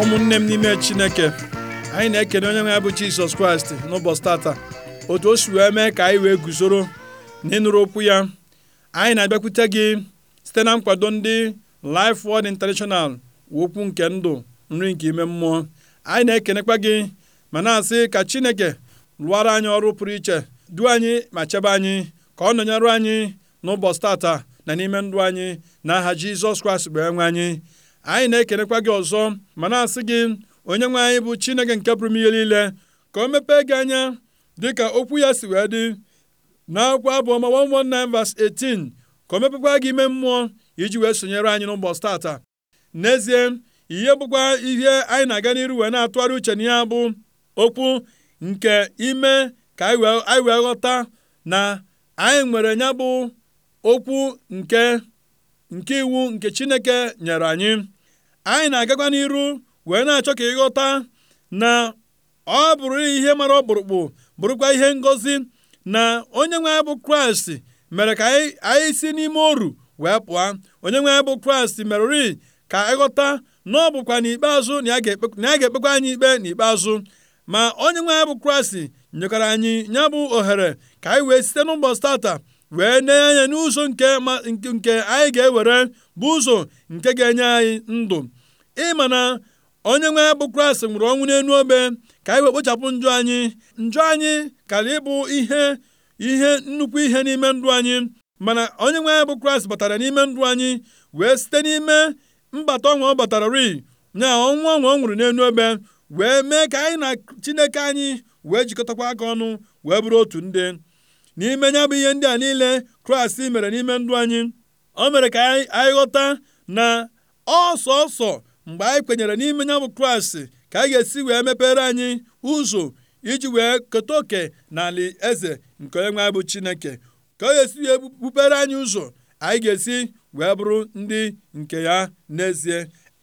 ụmụnne m n'ime chineke anyị na-ekene onye nwe ya bụ jizọs kraịst n'ụbọchị tata otu o si wee mee ka anyị wee guzoro na ịnụrụ okwu ya anyị na-abịakwute gị site na nkwado ndị Life Word International okwu nke ndụ nri nke ime mmụọ anyị na-ekenekwa gị ma na-asị ka chineke lụọrọ anyị ọrụ pụrụ iche duo anyị ma chebe anyị ka ọ nọnyere anyị n'ụbọchị tata na n'ime ndụ anyị na aha jizọs kraịst bụ enwe anyị anyị na-ekenekwa gị ọzọ ma na-asị gị onye nwe anyị bụ chineke nke pụrụ ihe niile ka o mepee gị anya dịka okwu ya si wee dị n'akwụkwọ abụọma 119 verse 18 ka o mepekwa gị ime mmụọ iji wee sonyere anyị n'ụbọchị tata n'ezie ihe bụkwa ihe anyị na-aga n'iru wee na-atụgharị uche na ya bụ okwu nke ime ka anyị wee ghọta na anyị nwere ya bụ okwu nke nke iwu nke chineke nyere anyị anyị na-agakwa n'iru wee na-achọ ka ịghọta na ọ bụrụ ihe mara ọkpụrụkpụ bụrụkwa ihe ngozi na onye nwe bụ kraịst mere ka anyị si n'ime oru wee pụọ onye nwe bụ kraịst merụri ka ịghọta na ọ bụkwa n'ikpeazụ na a ga-ekpekwa anyị ikpe n'ikpeazụ ma onye nwe bụ kraịst nyekwara anyị ya bụ ohere ka anyị wee site n'ụbọchị tata wee nee anya n'ụzọ nke nke anyị ga-ewere bụ ụzọ nke ga-enye anyị ndụ ịma na onye nwe bụ kraịst nwụrụ ọnwụ n'elu obe ka anyị wee kpochapụ njọ anyị njọ anyị kara ịbụ ihe ihe nnukwu ihe n'ime ndụ anyị mana onye nwe bụ kraịst batara n'ime ndụ anyị wee site n'ime mbata ọnwa ọ batara ri nya ọnwụ ọnwa ọ nwụrụ n'elu obe wee mee ka anyị na chineke anyị wee jikọtakwa aka ọnụ wee bụrụ otu ndị n'ime ya bụ ihe ndị a niile kraịst mere n'ime ndụ anyị o mere ka anyị ghọta na ọsọsọ mgbe anyị kwenyere n'ime ya bụ kraịst ka anyị ga-esi wee mepere anyị ụzọ iji wee keta oke n'ala eze nke onye nwe bụ chineke ka ọ ga-esi wee bupere anyị ụzọ anyị ga-esi wee bụrụ ndị nke ya n'ezie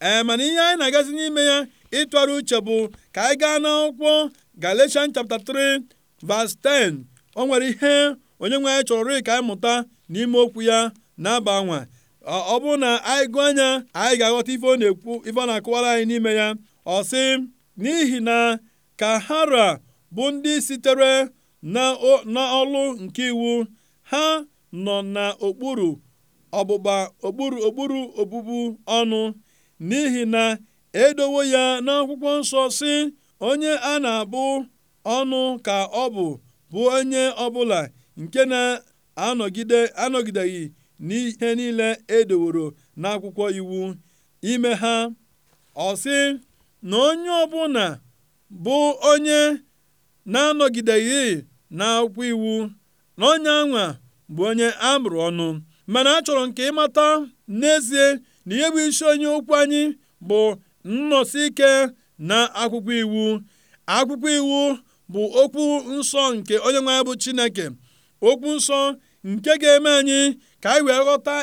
ee mana ihe anyị na-agazi n'ime ya ịtụgharị uche bụ ka anyị gaa n'akwụkwọ Galatians chapter 3 verse 10 o nwere ihe onye nwe anyị chọrọ ka anyị mụta n'ime okwu ya na-aba nwa ọ bụrụ na anyị gụọ anya anyị ga-aghọta ife ọ na-ekwu ife ọ anyị n'ime ya ọ sị n'ihi na ka hara bụ ndị sitere n'ọlụ nke iwu ha nọ n'okpuru ọgbụgba okpuru okpuru obubu ọnụ n'ihi na edowo ya n'akwụkwọ nsọ si onye a na-abụ ọnụ ka ọ bụ bụ onye ọbụla nke na-anọgide anọgideghị n'ihe niile e n'akwụkwọ iwu ime ha ọsị, na onye ọbụla bụ onye na-anọgideghị n'akwụkwọ iwu na onye anwa bụ onye a mụrụ ọnụ mana a chọrọ nke ịmata n'ezie na ihe bụ isi onye ụkwụ anyị bụ nnọsi ike na akwụkwọ iwu akwụkwọ iwu bụ okwu nsọ nke onye nwe bụ chineke okwu nsọ nke ga-eme anyị ka anyị wee ghọta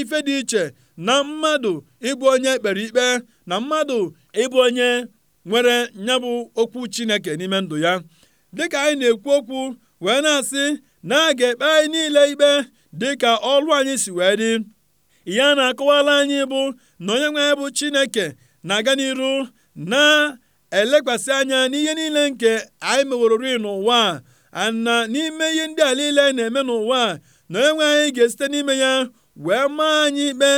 ife dị iche na mmadụ ịbụ onye kpere ikpe na mmadụ ịbụ onye nwere nya bụ okwu chineke n'ime ndụ ya dịka anyị na-ekwu okwu wee na-asị na a ga-ekpe anyị niile ikpe dịka ọlụ anyị si wee dị ya na-akọwala anyị bụ na onye nwe bụ chineke na-aga n'iru na elekwasị anya n'ihe niile nke anyị meworori n'ụwa a na n'ime ihe ndị a niile na-eme n'ụwa na enwe anyị ga-esite n'ime ya wee maa anyị ikpe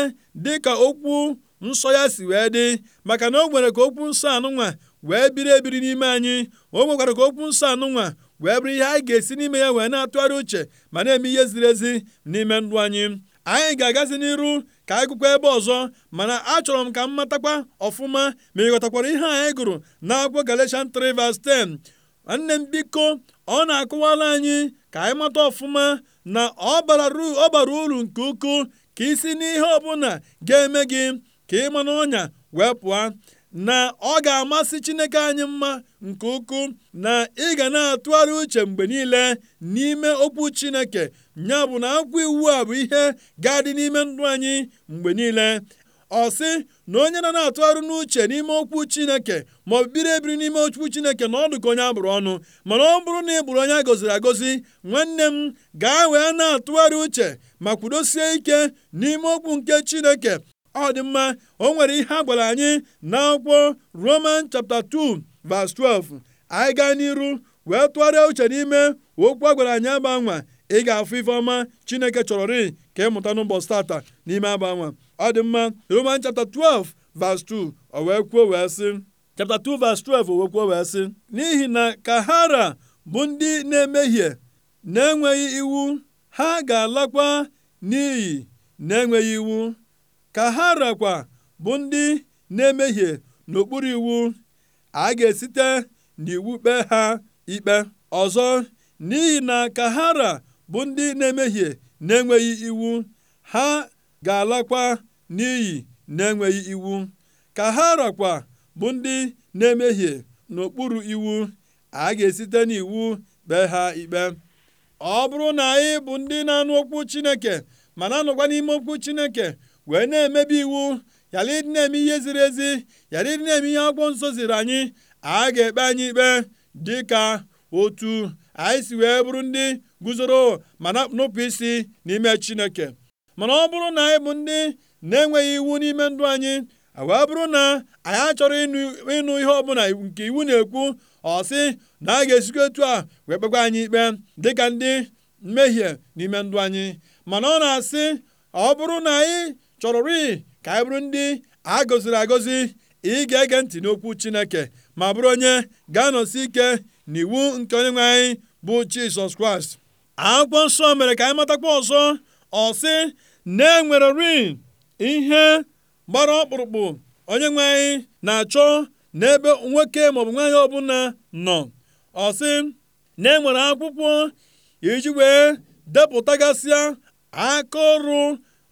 dịka okwu nsọ ya si wee dị maka na o nwere ka okwu nsọ anụnwa wee biri ebiri n'ime anyị o nwekwara ka okwu nsọ anụnwa wee bụrụ ihe anyị ga-esi n'ime ya wee na-atụgharị uche ma na-eme ihe ziri ezi n'ime ndụ anyị anyị ga-agazi n'iru ka anyị ebe ọzọ mana achọrọ m ka m matakwa ọfụma ma ịghọtakwara ihe anyị gụrụ na Galatian 3 verse 10 nwanne m biko ọ na-akụwala anyị ka anyị mata ọfụma na ọ bara uru nke ukwuu ka isi n'ihe ọbụla ga-eme gị ka ịma ọnya wee pụọ na ọ ga-amasị Chineke anyị mma nke ukwuu na ị ga na-atụgharị uche mgbe niile n'ime okwu Chineke nya bụ na akwụkwọ iwu a bụ ihe ga-adị n'ime ndụ anyị mgbe niile ọ sị na onye na na-atụgharị n'uche n'ime okwu Chineke ma ọ bụ biri ebiri n'ime okwu Chineke na ọ dị ka onye abụrụ ọnụ mana ọ bụrụ na ị bụrụ onye a gọziri agọzi nwanne m gaa wee na-atụgharị uche ma kwudosie ike n'ime okwu nke Chineke ọ dị mma o nwere ihe agwara gwara anyị n'akwụkwọ roman chapter 2 verse 12 anyị gaa n'iru wee tụgharịa uche n'ime okwu agwara gwara anyị agbanwa ị ga-afụ ife ọma chineke chọrọ rịị ka ị mụta n'ụbọchị tata n'ime agbanwa ọ dị mma roman chapter 12 verse 2 o wee kwuo wee sị chapta 2 verse 12 wee sị n'ihi na ka bụ ndị na-emehie na-enweghị iwu ha ga-alakwa n'iyi na-enweghị iwu ka ha rakwa bụ ndị na-emehie n'okpuru iwu a ga-esite n'iwu kpee ha ikpe ọzọ n'ihi na ka ha ra bụ ndị na-emehie na-enweghị iwu ha ga-alakwa n'iyi na-enweghị iwu ka ha rakwa bụ ndị na-emehie n'okpuru iwu a ga-esite n'iwu kpee ha ikpe ọ bụrụ na anyị bụ ndị na-anụ okwu Chineke ma na-anọkwa n'ime okwu Chineke wee na-emebi iwu ghara ịdị na-eme ihe ziri ezi ghara ịdị na-eme ihe ọgwụ nsọ ziri anyị a ga-ekpe anyị ikpe dịka otu anyị si wee bụrụ ndị guzoro ma nupụ isi n'ime chineke mana ọ bụrụ na anyị bụ ndị na-enweghị iwu n'ime ndụ anyị wee bụrụ na anyị achọrọ ịnụ ihe ọbụla nke iwu na-ekwu ọ sị na a ga-esikwa etu a wee kpekwa anyị ikpe dịka ndị mmehie n'ime ndụ anyị mana ọ na-asị ọ bụrụ na anyị chọrọrị ka anyị bụrụ ndị a gọziri agọzi ị ga-ege ntị n'okwu Chineke ma bụrụ onye ga-anọsi ike n'iwu nke onyenwe anyị bụ Jizọs Kraịst akwụkwọ nsọ mere ka anyị matakwa ọzọ ọ sị na-enwererị ihe gbara ọkpụrụkpụ onyenwe anyị na-achọ n'ebe nwoke maọbụ nwaanyị ọbụla nọ ọ sị na-enwere akwụkwọ iji wee depụtagasịa aka ọrụ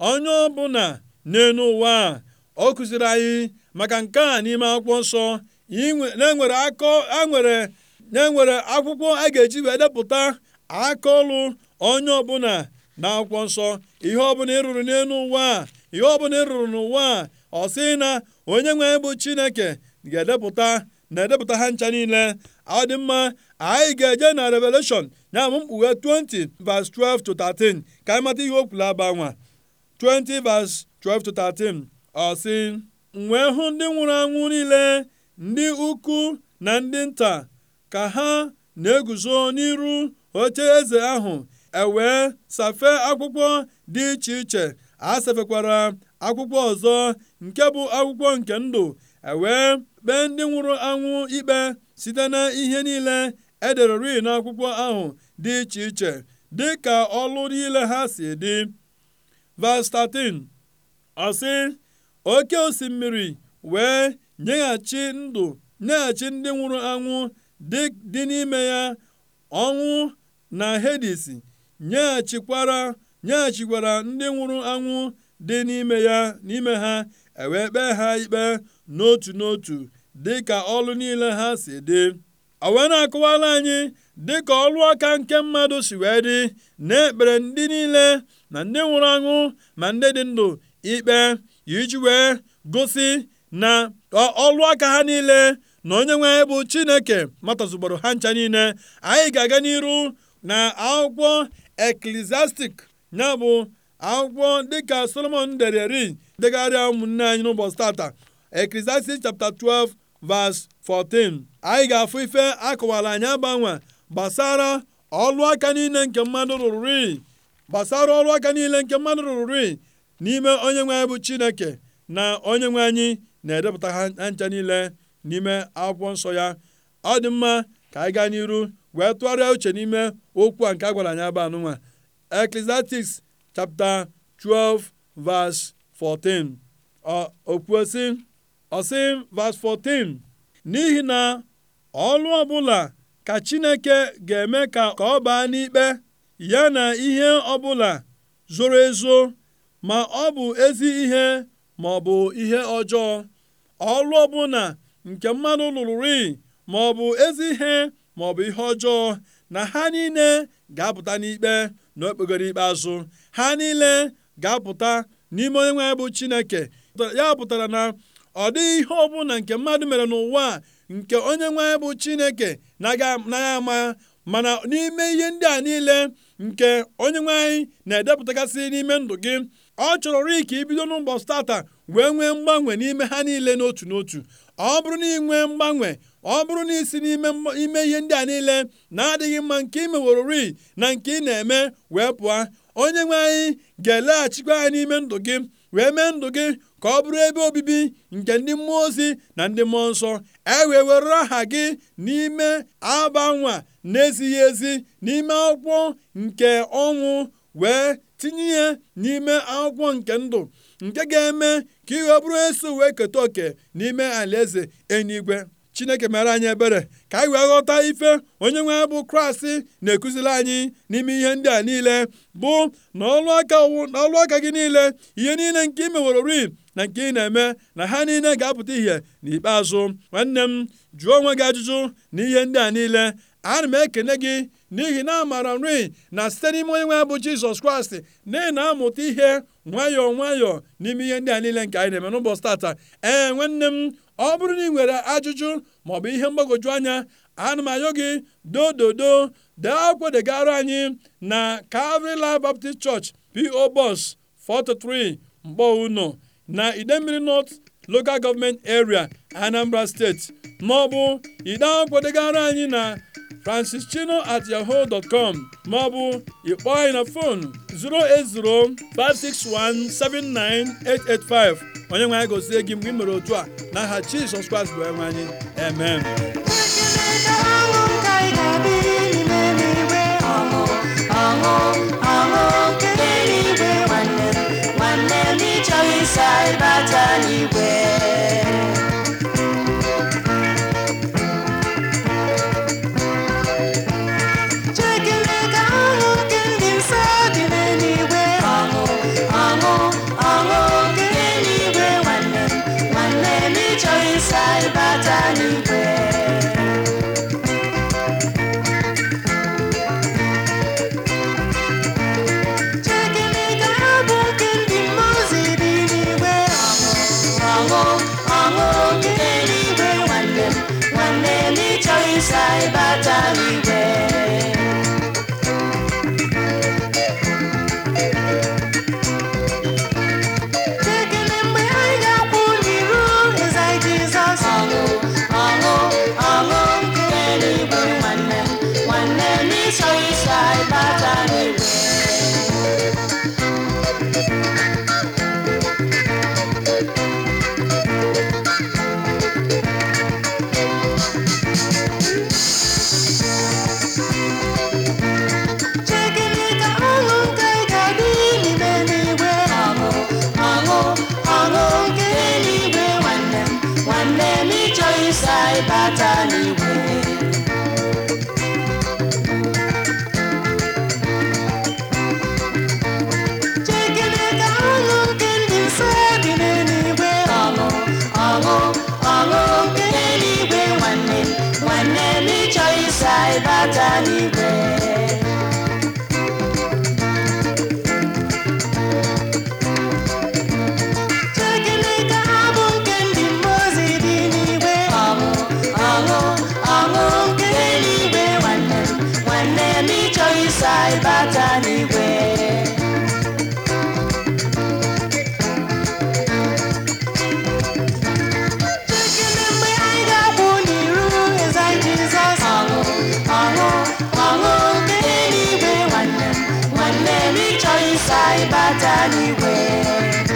onye ọbụla n'elu ụwa ọ kụziri anyị maka nke a n'ime akwụkwọ nsọ na-enwere akọ enwere na-enwere akwụkwọ a ga-eji wee depụta akaọlụ onye ọbụla na akwụkwọ nsọ ihe ọbụla ị rụrụ n'elu ụwa ihe ọbụla ị rụrụ n'ụwa a ọ sị na onye nwe bụ chineke ga-edepụta na-edepụta ha ncha niile ọ dị mma anyị ga-eje na revelation ya bụ mkpughe 20 verse 12 to 13 ka anyị mata ihe o aba nwa 20 12 13 ọ sị wee hụ ndị nwụrụ anwụ niile ndị ukwu na ndị nta ka ha na-eguzo n'iru oche eze ahụ ewee safe akwụkwọ dị iche iche a safekwara akwụkwọ ọzọ nke bụ akwụkwọ nke ndụ ewee kpee ndị nwụrụ anwụ ikpe site na ihe niile na e n'akwụkwọ ahụ dị iche iche dị ka ọlụ niile ha si dị Vas 13 ọ oke osimiri wee nyeghachi ndụ nyeghachi ndị nwụrụ anwụ dị n'ime ya ọnwụ na Hedis nyeghachikwara nyeghachikwara ndị nwụrụ anwụ dị n'ime ya n'ime ha ewee kpee ha ikpe n'otu n'otu dị ka ọlụ niile ha si dị o wee na dị anyị dịka ọlụ aka nke mmadụ si wee dị na ndị niile na ndị nwụrụ anwụ ma ndị dị ndụ ikpe iji wee gosi na ọlụ aka ha niile na onye nwe bụ chineke matazugboro ha ncha niile anyị ga-aga n'iru na akwụkwọ eklesiastik ya bụ akwụkwọ dịka solomon dere ri degharịa ụmụnne anyị n'ụbọchị tata eklesiastik chapter 12 verse 14 anyị ga-afụ ife akọwara anyị agbanwe gbasara ọlụ aka niile nke mmadụ rụrụ rii gbasara ọrụ aka niile nke mmadụ rụrụ n'ime onye nwe anyị bụ chineke na onye nwe anyị na-edepụta ha ncha niile n'ime akwụkwọ nsọ ya ọ dị mma ka anyị gaa n'iru wee tụgharịa uche n'ime okwu a nke a gwara anyị aba anụnwa Ecclesiastes chapta 12 verse 14 okwuosi ọsị verse 14 n'ihi na ọlụ ọbụla ka Chineke ga-eme ka ọ baa n'ikpe ya na ihe ọbụla zoro ezo ma ọ bụ ezi ihe ma ọ bụ ihe ọjọọ Ọrụ ọbụla nke mmadụ lụrụri ma ọ bụ ezi ihe ma ọ bụ ihe ọjọọ na ha niile ga-apụta n'ikpe na okpegoro ikpeazụ ha niile ga-apụta n'ime onye nwe bụ Chineke ya pụtara na ọ dịghị ihe ọbụla nke mmadụ mere n'ụwa nke onye nwe bụ Chineke na ya ama mana n'ime ihe ndị a niile nke onye nwe anyị na edepụtagasị n'ime ndụ gị ọ chọrọrị ka ibido n'ụbọchị tata wee nwee mgbanwe n'ime ha niile n'otu n'otu ọ bụrụ na ị nwee mgbanwe ọ bụrụ na isi n'ime ime ihe ndị a niile na-adịghị mma nke ị meworori na nke ị na-eme wee pụọ onye nwe anyị ga-eleghachikwa anyị n'ime ndụ gị wee mee ndụ gị ka ọ bụrụ ebe obibi nke ndị mmụọ ozi na ndị mmụọ nsọ e wee were aha gị n'ime aba nwa nezighi ezi n'ime akwụkwọ nke ọnwụ wee tinye ihe n'ime akwụkwọ nke ndụ nke ga-eme ka ị ọ bụrụ eso wee keta oke n'ime alaeze enyigwe. chineke mere anyị ebere ka anyị wee ghọta ife onye nwe bụ kraịst na-ekụziri anyị n'ime ihe ndị a niile bụ na ọlụ aka na ọlụ aka gị niile ihe niile nke ị meworori na nke ị na-eme na ha niile ga-apụta ihe n'ikpeazụ nwanne m jụọ onwe gị ajụjụ na ihe ndị a niile ana m ekene gị n'ihi na amaara nri na site n'ime onye nwe bụ jizọs kraịst na ị na-amụta ihe nwayọọ nwayọ n'ime ihe ndị a niile nke anyị na-eme n'ụbọchị tata ee nwanne m ọ bụrụ na ị nwere ajụjụ maọbụ ihe mgbagoju anya ana m ayọ gị dododo dee akwụkwọ degara anyị na Calvary Life Baptist Church P.O. bos 43 unu na idemmiri North local government area anambra steeti maọbụ ide akwụkwọ degara anyị na francis chino at yahoo com maọbụ ịkpọọ anyị na fon 08056179885 onye nwe anyị gozie gị mgbe ị mere otu a n'aha jizọs kraịst bụ enwe anyị amen bata n'igwe chekene ka nke ndị nsọ dị n'eluigwe ọṅụ ọṅụ ọṅụ nke nwanne nwanne n'ịchọ ịsa n'igwe n'ịchọ ịsa ịbata n'igwe